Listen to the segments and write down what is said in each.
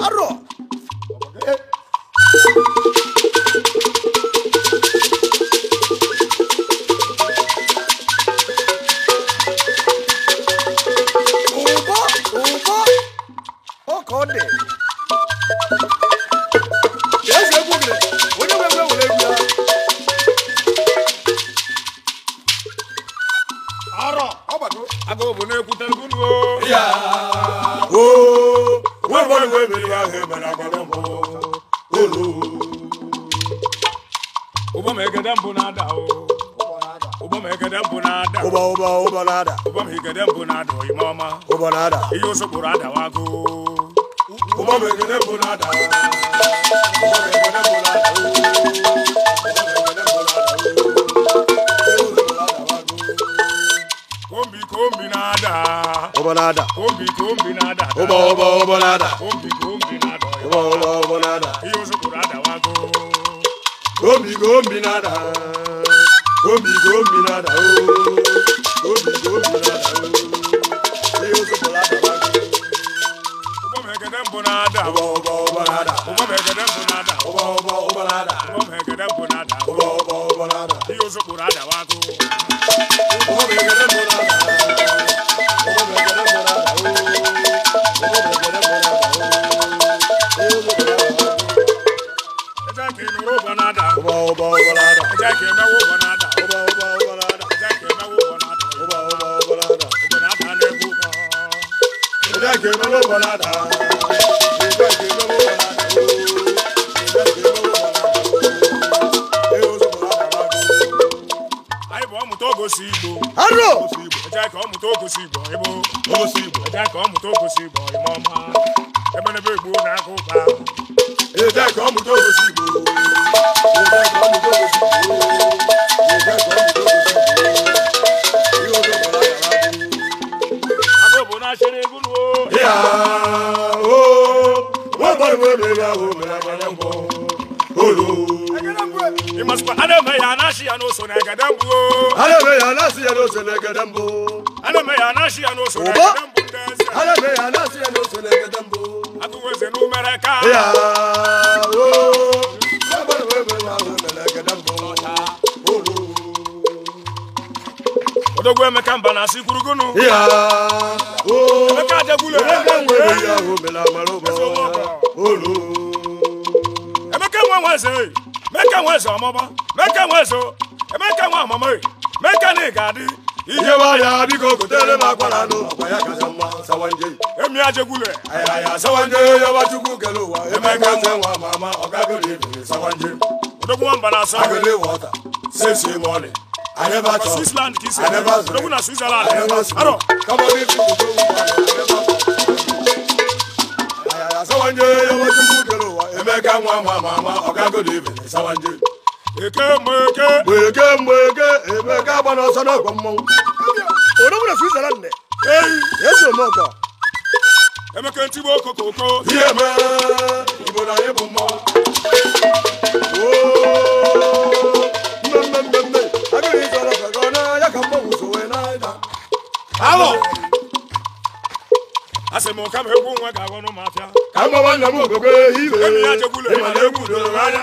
A ebili ahụ emere mbụ mbụ na-ada ụgbọ ma mbụ na-ada ụgbọ ụgbọ ụgbọ na-ada ụgbọ ma mbụ na-ada oyime ọma ụgbọ na-ada ihe osokporo mbụ na-ada ụgbọ ma mbụ na-ada kombi kombi na-ada na wọ́wọ́wọ́ nada. Yusufu rada wa go. Gombi gombi nada. Gombi gombi nada o. Oh. Gombi gombi nada o. Oh. Yusufu rada wa go. Gbọ́mọ̀ ẹ̀gẹ́dẹ́ ń bọ̀ náà dà. Wọ́wọ́wọ́. Obanada. ya n'ose ne na aname ya anashi ya n'ose ya anashi ya mbụ atụweze n'umere ka ya na ahụ n'egede mba na asị kwurugunu ya ooo emeka ajagbula emeka nwere ya ahụ mela amara emeka emeka emeka mekanik adị ihe waya biko gotere m akwara n'ụlọ ya sawanje ya ajegwule kele ụwa emeka nwa ma ama ebiri sawanje odogwu nwamba na asa agoli wọta sesi mọlị aneba chọ switzerland kisi aneba zere odogwu na switzerland arọ kabọbi fi ya ayaya sawanje yaba chukwu kele ụwa emeka nwa ma ama ọgagoli ebiri sawanje eke mgbeke emeka ka nwa ga-agwọ n'ụmụafịa ka nna m ihe anya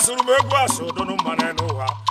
asụrụ m egwu man dunu mmanụ n'ụwa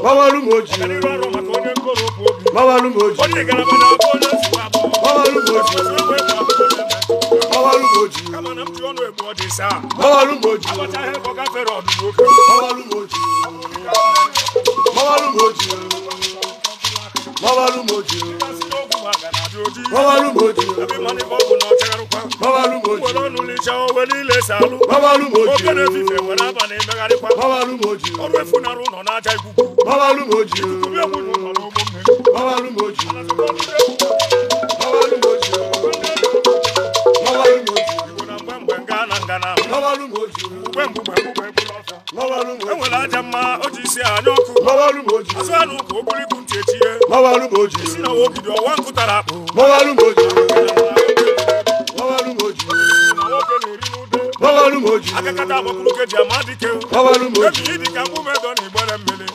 gbawalu moji gbawalu moji gbawalu moji ọlùmọ̀jì. kámánà tí ọ̀nà ẹ̀mú ọ̀dì sá. ọlùmọ̀jì. àbọ̀tá ẹ̀kọ́ káfẹ́rẹ́ ọ̀dùn lókè. ọlùmọ̀jì. ọlùmọ̀jì. ọlùmọ̀jì. ọlùmọ̀jì. àbí mọ́ni bọ́ọ̀bù náà tẹ́rù pa. ọlùmọ̀jì. ọlọ́nu lè ṣe ọwọ́ ní ilé sàlù. ọlùmọ̀jì. ó kéde fífẹ̀ wọ́n náà bà ní mẹ́gàrí pa. ọlùmọ̀jì. ọ̀rọ̀ ẹ̀fúnarú nọ̀ náà tẹ́ gbogbo. Baba Lumoji o. Baba Lumoji o. Baba Lumoji o. Baba Lumoji o. Baba Lumoji o. Baba Lumoji o. Enwere aja mma o ji isi anya ọkụ. Baba Lumoji o. Azụ anụ ka okpurikpu ntị echi ye. Baba Lumoji o. Lumoji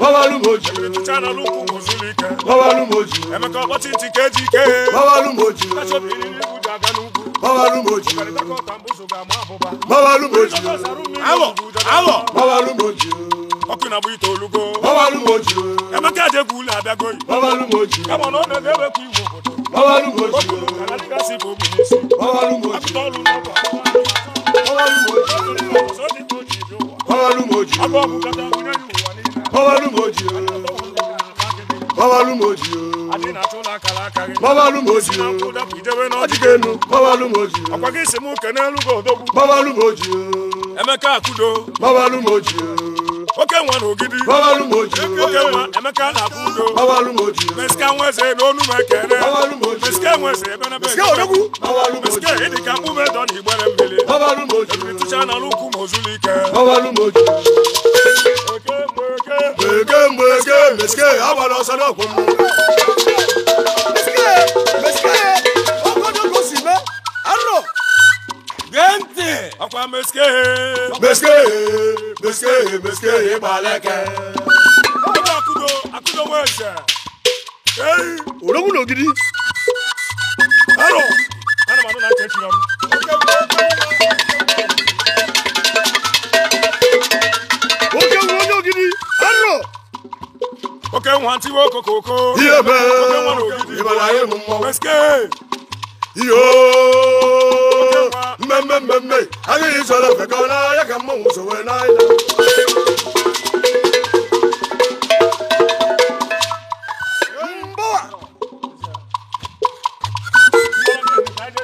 babalúmojì chana lukú kò sílí kẹ babalúmojì ẹ̀mẹ́kọ̀ ọ̀pọ̀ tí ti kéjì ké babalúmojì ẹ̀ṣọ́bìnrin ní ibùdó àgánúgbò babalúmojì babalúmojì awọ awọ babalúmojì ọkùnrin àbúyí tó olúgbó babalúmojì ẹ̀mẹ́kẹ́ àjẹkù ilẹ̀ àbẹ́gọ́yì babalúmojì ẹ̀mọ̀ náà nà ẹ̀dẹ́wẹ̀ kú ìwọ̀ bọ̀dọ̀ babalúmojì ọkùnrin àlá Babalúmojì. gbawalu m oji na dịga enu gbawalu m gị si m kene elu gị odogwu gbawalu m oji Emeka Akudo gbawalu m oji oke nwa oke Emeka ebe ka na igbere mmiri gbawalu m oji tụcha ike meske meske meske meske ibaleke. ọlọ́run akudo akudo wọ ẹsẹ̀. ológun lò gidi. ẹrọ anamadu náà tẹ̀ ẹ́ tìrọ̀ mi. oke nwanti wo kokoko. iye bẹ́ẹ̀ ìbàlàyé mu mọ́. pẹ́sikẹ́. iyo. mmemme mmemme agaghị isoro ofe ka n'ahịa ka mmanwụ so wee n'ahịa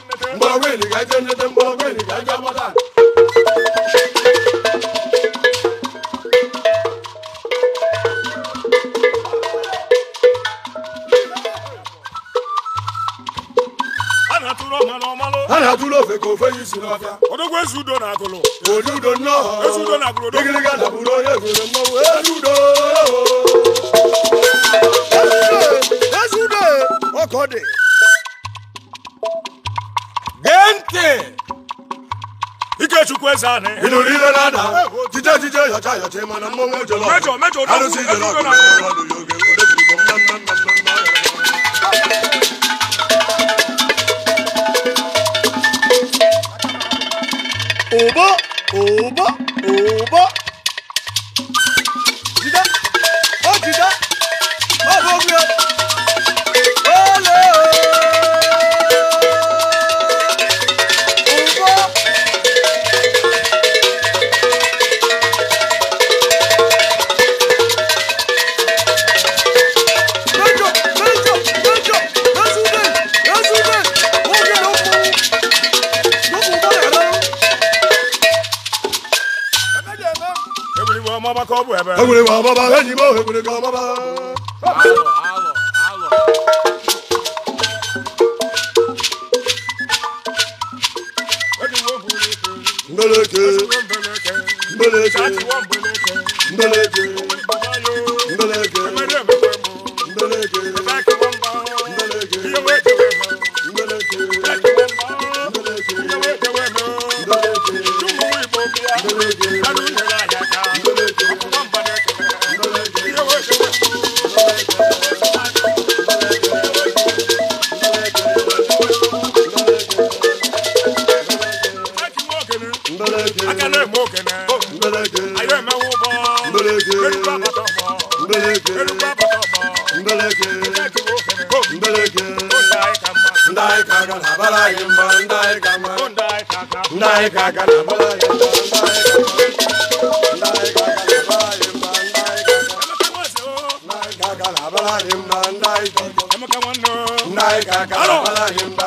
mgbe ga-eje nleta odudo nnọọ igiriga dapụrụ onye gụrụ mmọnwụ edudo ezudo ọkọdị gee ntị ikechukwu eze anị ịnụrụ ile na jije jije yọcha yọcha mana mmọnwụ ejọlọ arụsị ijọlọ ọdụ ya oge over. ọmọbaka ọ bụ ebe. Egwere gị ọbaba enyi m egwere gị ọbaba. Alọ alọ alọ. Mbeleke. Mbeleke. Mbeleke. Mbeleke. ndai kama ndai kaka ndai kaka na bala ndai kaka ndai kaka na bala imba ndai kaka ndai kaka na bala imba ndai kaka ndai kaka na bala imba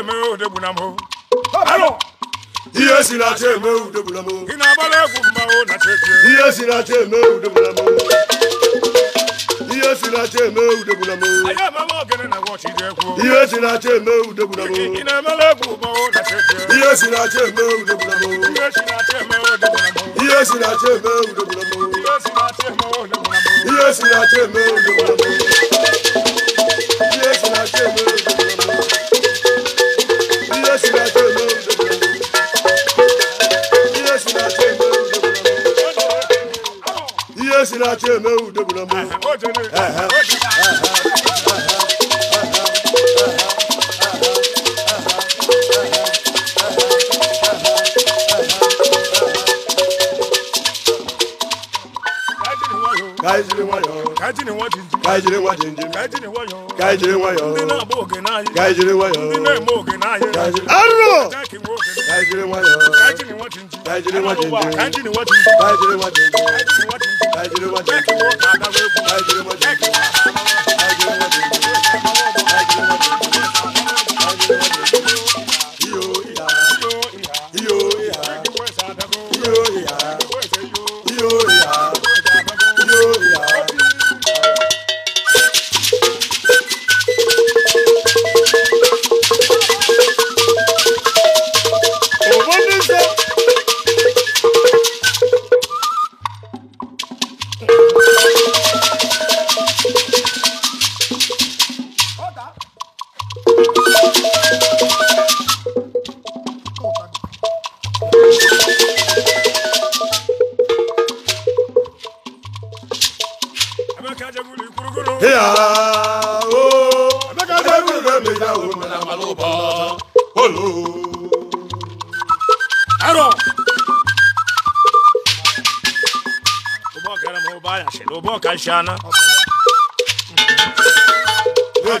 ihe si na acha eme ude gbuna si na ude si na ude ihe si na ude si na ude ọchị emewu debụla m kaijiri nwayọọ kaijiri nwajinji kaijiri nwajinji kaijiri nwayọọ kaijiri nwayọọ ndị na-agba oge n'ahịa kaijiri nwayọọ ndị na-eme oge n'ahịa kaijiri arụrụ kaijiri nwayọọ kaijiri nwajinji kaijiri nwajinji I Nigeria,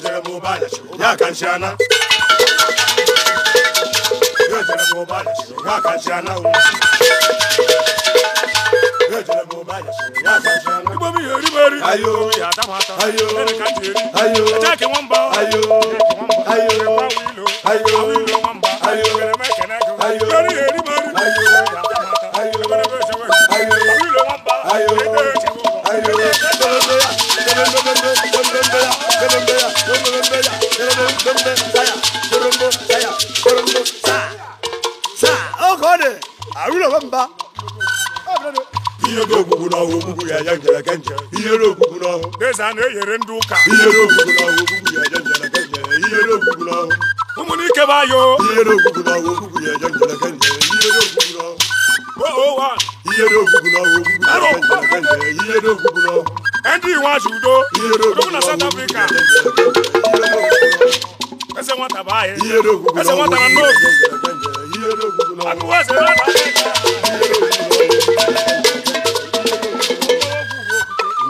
j a i n s a n mi o t ere a n j n ba a o a o a y n y e r a ko a y i y ta m oge ọ na na ya na-eyere ndị ụka ihe n'ogbugbu ya ya ya ya ya azụ udo South Africa na baye i g e r e ogugu na ọgwụ i y e r o g u g a ọ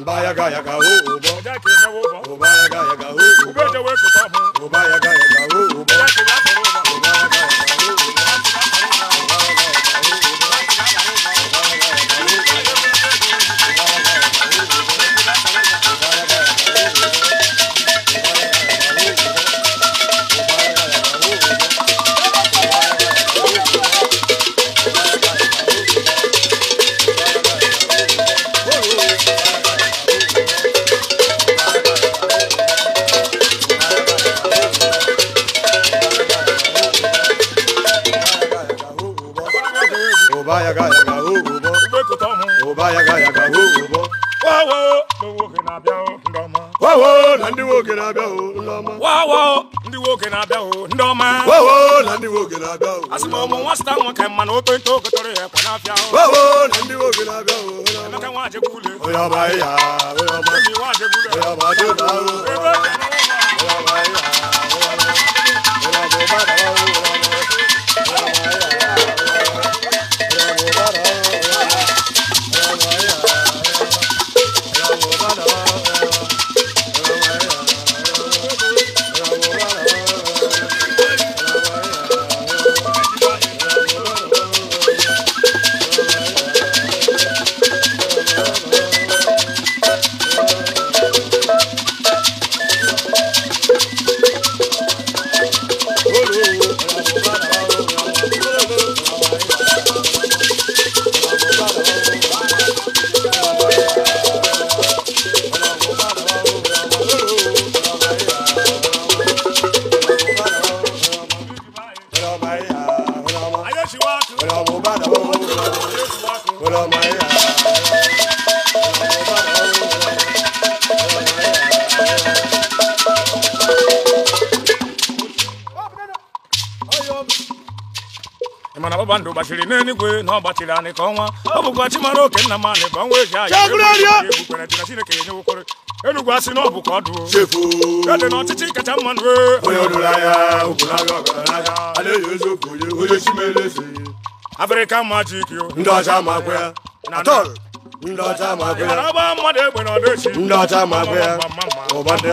g m a ya ga ya ga yaga na ọma ndụ gbachiri n'eluigwe na ọ gbachiri anyị ka ọnwa ọ bụkwa chi oke nna m anyị ka ọnwa eji aya egbukwere dị na chineke ya nyewokwere enugwu asị na ọ bụ ka ọ ede na ọchịchị kacha mma nụ afrịka majik ndị ọcha ma akwa ya ndị ọcha ma akwa ya ndị ọcha ma akwa ya ụba ndị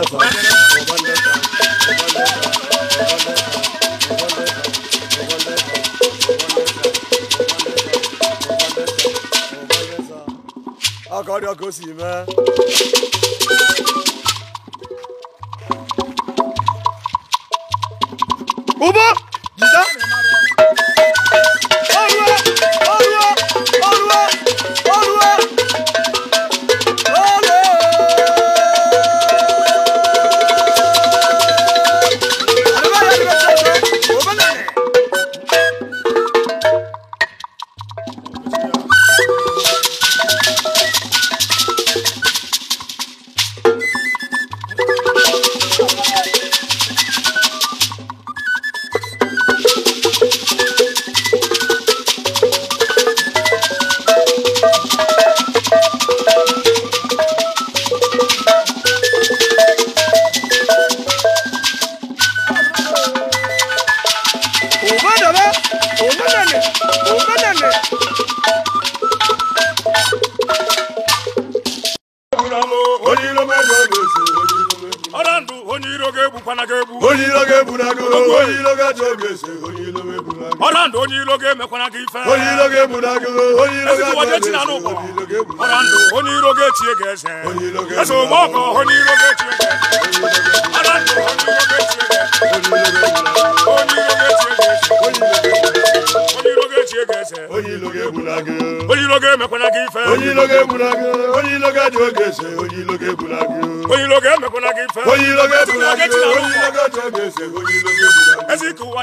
一条狗屎吗？ya n'ụkwa ọra ndụ onye iro ga-echi ga eze eze ụgbọ ọkọ onye iro ga-echi ga eze ọra ndụ onye iro ga ga eze onye iro ga ga eze onye ga gị ife onye ga-egbula gị onye ga oge eze onye ga-egbula gị onye ga gị ife onye ụwa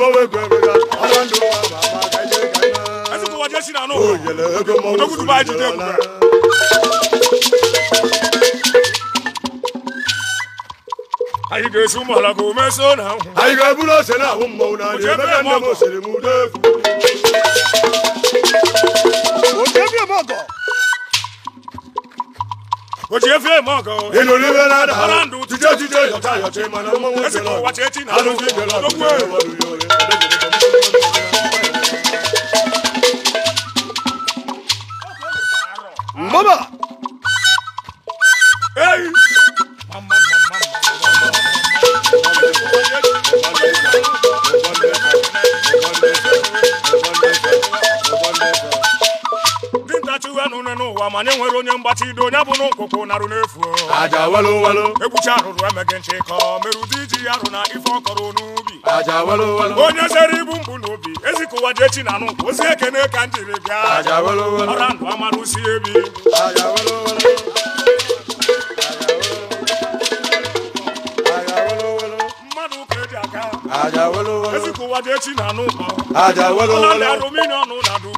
ẹsìnkú wọ́n jẹ́ sínú àná òdòkùtù bá jí dẹ́kun rẹ̀. ayike sunba la ko mɛ so na. ayike bulo sɛnɛ a ko mɔw na de bɛ kɛ ne ko selimu de. o tɛ bilen mɔ kɔ ojiye fiye mọ gan o. inú ní bẹ́ẹ̀ náà dàrú jíjẹ́ jíjẹ́ yọ̀tá yọ̀tá ìmọ̀ náà mọ̀ wọ́n ti lọ alójú ìgbẹ́ lọ lókun ẹ̀. mama. ma nwere onye mgbachido onye bụ n'ụkwụkwụ narụ n'efu aja walo walo ekwuchi arụrụ emeghị nchị ka merụdị iji ya rụ na ife ọ kọrọ n'ubi aja walo walo onye zere ibu mgbu n'obi ezikụwa je echi na anụ. ozi ekene ka m jiri bịa aja walo walo ọra ndụ amalụ si ebi aja walo walo mmadụ ka eji aka ezikụwa je chi na nụ ọrụ ndị arụmini ọnụ na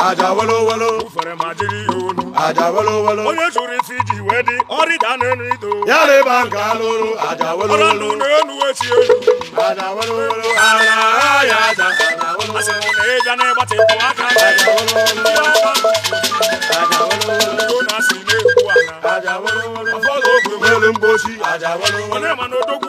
aja wolowolo fere ma jiri aja wolowolo onye chụrụ si ji wee dị ọrịda n'elu ido ya leba nke alụrụ aja wolowolo ọrụ ndụ n'elu echi elu aja wolowolo ala ya aja asị m na ịja na-agbatịpụ aka aja wolowolo aja wolowolo na asị na-egwu ala aja wolowolo ụfọdụ ogwe nwelu mgbochi aja wolowolo onye ma na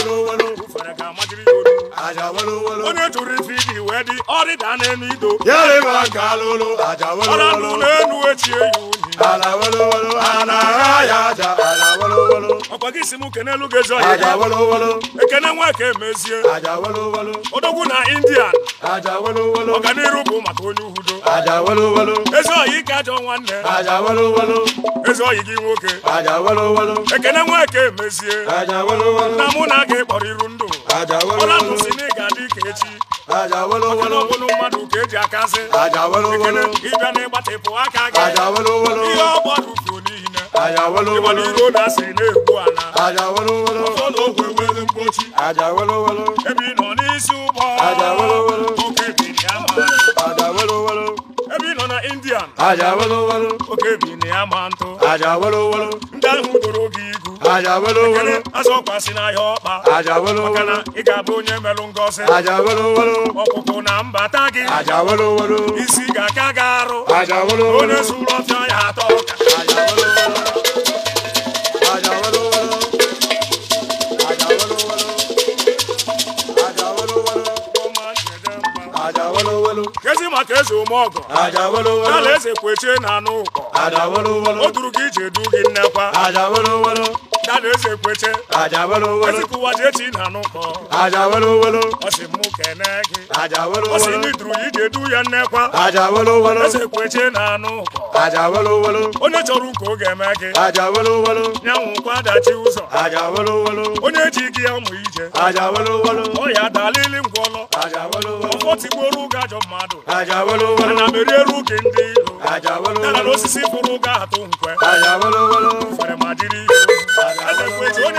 wolowolo fẹrẹ ka majiri yodo aja wolowolo onye turu fi di wedi ọrị da n'enu ido yẹrẹ ma nka lolo aja wolowolo ọla nu n'enu echi eyu ni ala wolowolo ana ha ya aja ala wolowolo ọkwa gị si mụ kene elu gị zọ ya aja wolowolo ekene nwa ka emezie aja wolowolo odogwu na indian aja wolowolo ọganiru bụ maka onye uhudo aja wolowolo ezi ọyị ka ajọ nwanne aja wolowolo ezi ọyị gị nwoke aja wolowolo ekene nwa ka emezie aja wolowolo na mụ na gị kpọrịrụ ndụ ọla mụsi na ị ga-adị ka echi ọkọlọbụlụ mmadụ ka eji akasị ekele ịbịa na ịgbatịpụ aka gị ihe ọ gbarufu n'ihi na ịgbara iro na asị na-egbu ala ọfọ na ogwe nwere mgbochi indian oke biri ya ma ntụ ndị ahụ goro aja welu welu n'ahịa ọkpa aja maka na ị ga-abụ onye melụ ngọzi aja welu welu ọkpụkpụ na mbata gị aja isi ga-aka gị arụ aja onye zuru ọfịa ya atọ ọka. aja welu aja kezi maka eze ụmụ ọgọ aja ala eze kwechie na anụ ụkọ o duru gị ije du gị nnekwa dáadé ṣe pété. àjàwélówó. ẹsìnkú wájú etí nànú wolo, àjàwélówó. ọsì mú kẹ̀nẹ́gì. àjàwélówó. ọsì ní dùrù yìí dé dúyẹ nẹ́pà. àjàwélówó. ẹsẹ̀ pété nànú kan. àjàwélówó. onítọ̀rù kò gẹ̀mẹ́gì. àjàwélówó. nyàwùn kwada tí ó sọ. àjàwélówó. onye ji gị ọmụ ije. àjàwélówó. ọya dalili ngwọlọ. wolo, ọfọ ti gboro gajọ mmadụ. àjàwélówó. ana m eri eru gị ndị ilo. àjàwélówó. nara n'osisi furu ga-atụ nkwe. àjàwélówó. fere ma dịrị ihu.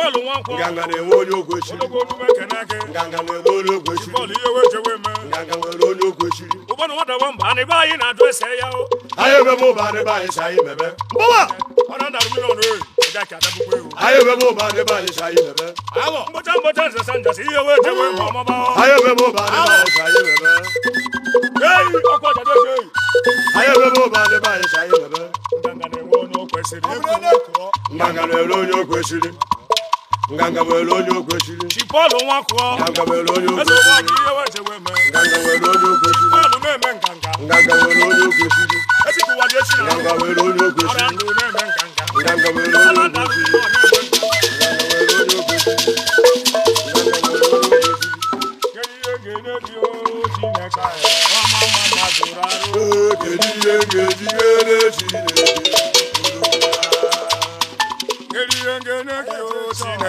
bọ́ọ̀lù wọn kọ. gàngàn ewo ló gbèsè. olókoòlù bẹ kẹ̀ náà kẹ́. gàngàn ewo ló gbèsè. bọ́ọ̀lù iye wé jẹwé mẹ́. gàngàn ewo ló gbèsè. o bọ́ọ̀lù wọn dọ̀bọ̀ nbà ní báyìí nà dún ẹsẹ̀ yá o. ayé bẹ mú bá ní báyìí sáyé bẹbẹ. bọ́wà. ọ̀nà dàrú mílíọ̀nù rẹ̀ ẹ̀dá kí adágúgbé o. ayé bẹ mú bá ní báyìí sáyé bẹbẹ. àwọ̀ mbọ́tà mbọ́tà ń jàsí iye wé jẹwé mọ́ ọmọ bá ọ. ayé bẹ mú bá ní báyìí sáyé bẹbẹ. yéèyì ọkọ jàdé ṣe yìí ngangabwela onye okwesiri chipọlụ nwakụọ ngangabwela onye okwesiri ngangabwela onye okwesiri ngangabwela onye okwesiri ngangabwela onye okwesiri ngangabwela onye okwesiri Chineke anyị, ọma mma na zụrụ arụ. Kedu ihe ga-eji ghere Chineke?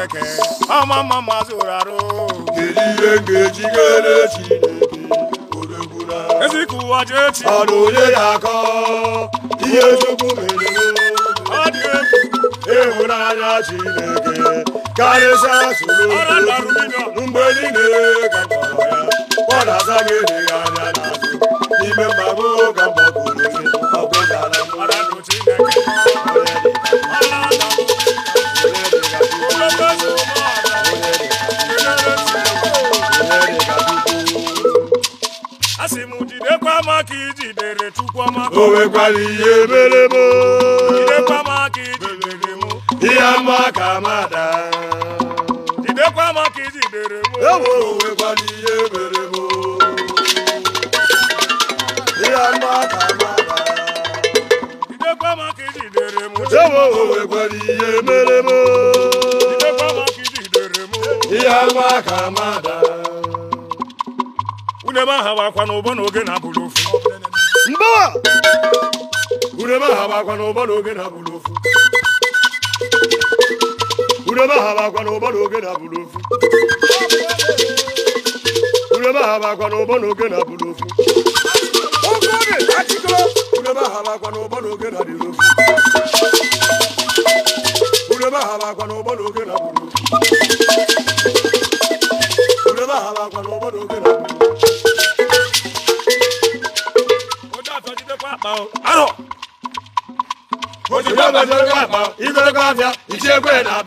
chineke ama ma ma zụrụ arụ kedu ihe ga-ejigere chineke odegbula ezika onye ga-akọ ihe chukwu mere ọ dị egwu ịhụnanya chineke karịsịa soro mgbe niile ka kọrọ ya ọ na-aza gị anya n'azụ n'ime Jidekwa ka ijidere Chukwuamaka o nwekwara ihe mere m Jidekwa ma ka ijidere m ihe ama ka amada ka ijidere m nwekwara ihe mere m ihe ama ka amada Jidekwa ma ka m nwekwara ihe mere m ka m ihe ka wakwa n'ụbọ n'oge na urebe aha bakwa n'ụba na oge na-abụrụ na oge na-abụrụ na banyere akpa igorego afịa ichie ekwe na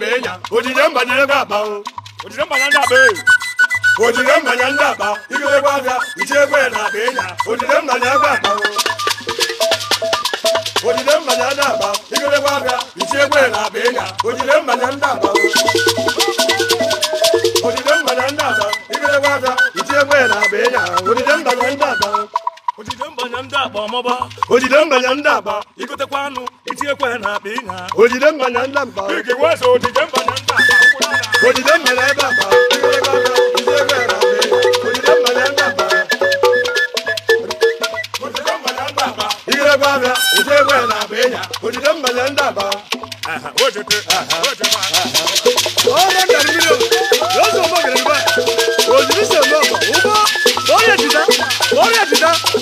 mbanya ndị agba ọmọba ojide mbanya ndị agba igotekwa anụ itinyekwa na akpa ịnya ojide mbanya ndị agba igewe eze ojide mbanya ndị agba ojide mbanya ebe agba igotekwa anụ itinyekwa na akpa ịnya ojide mbanya ndị agba ojide mbanya ndị agba igotekwa anụ itinyekwa na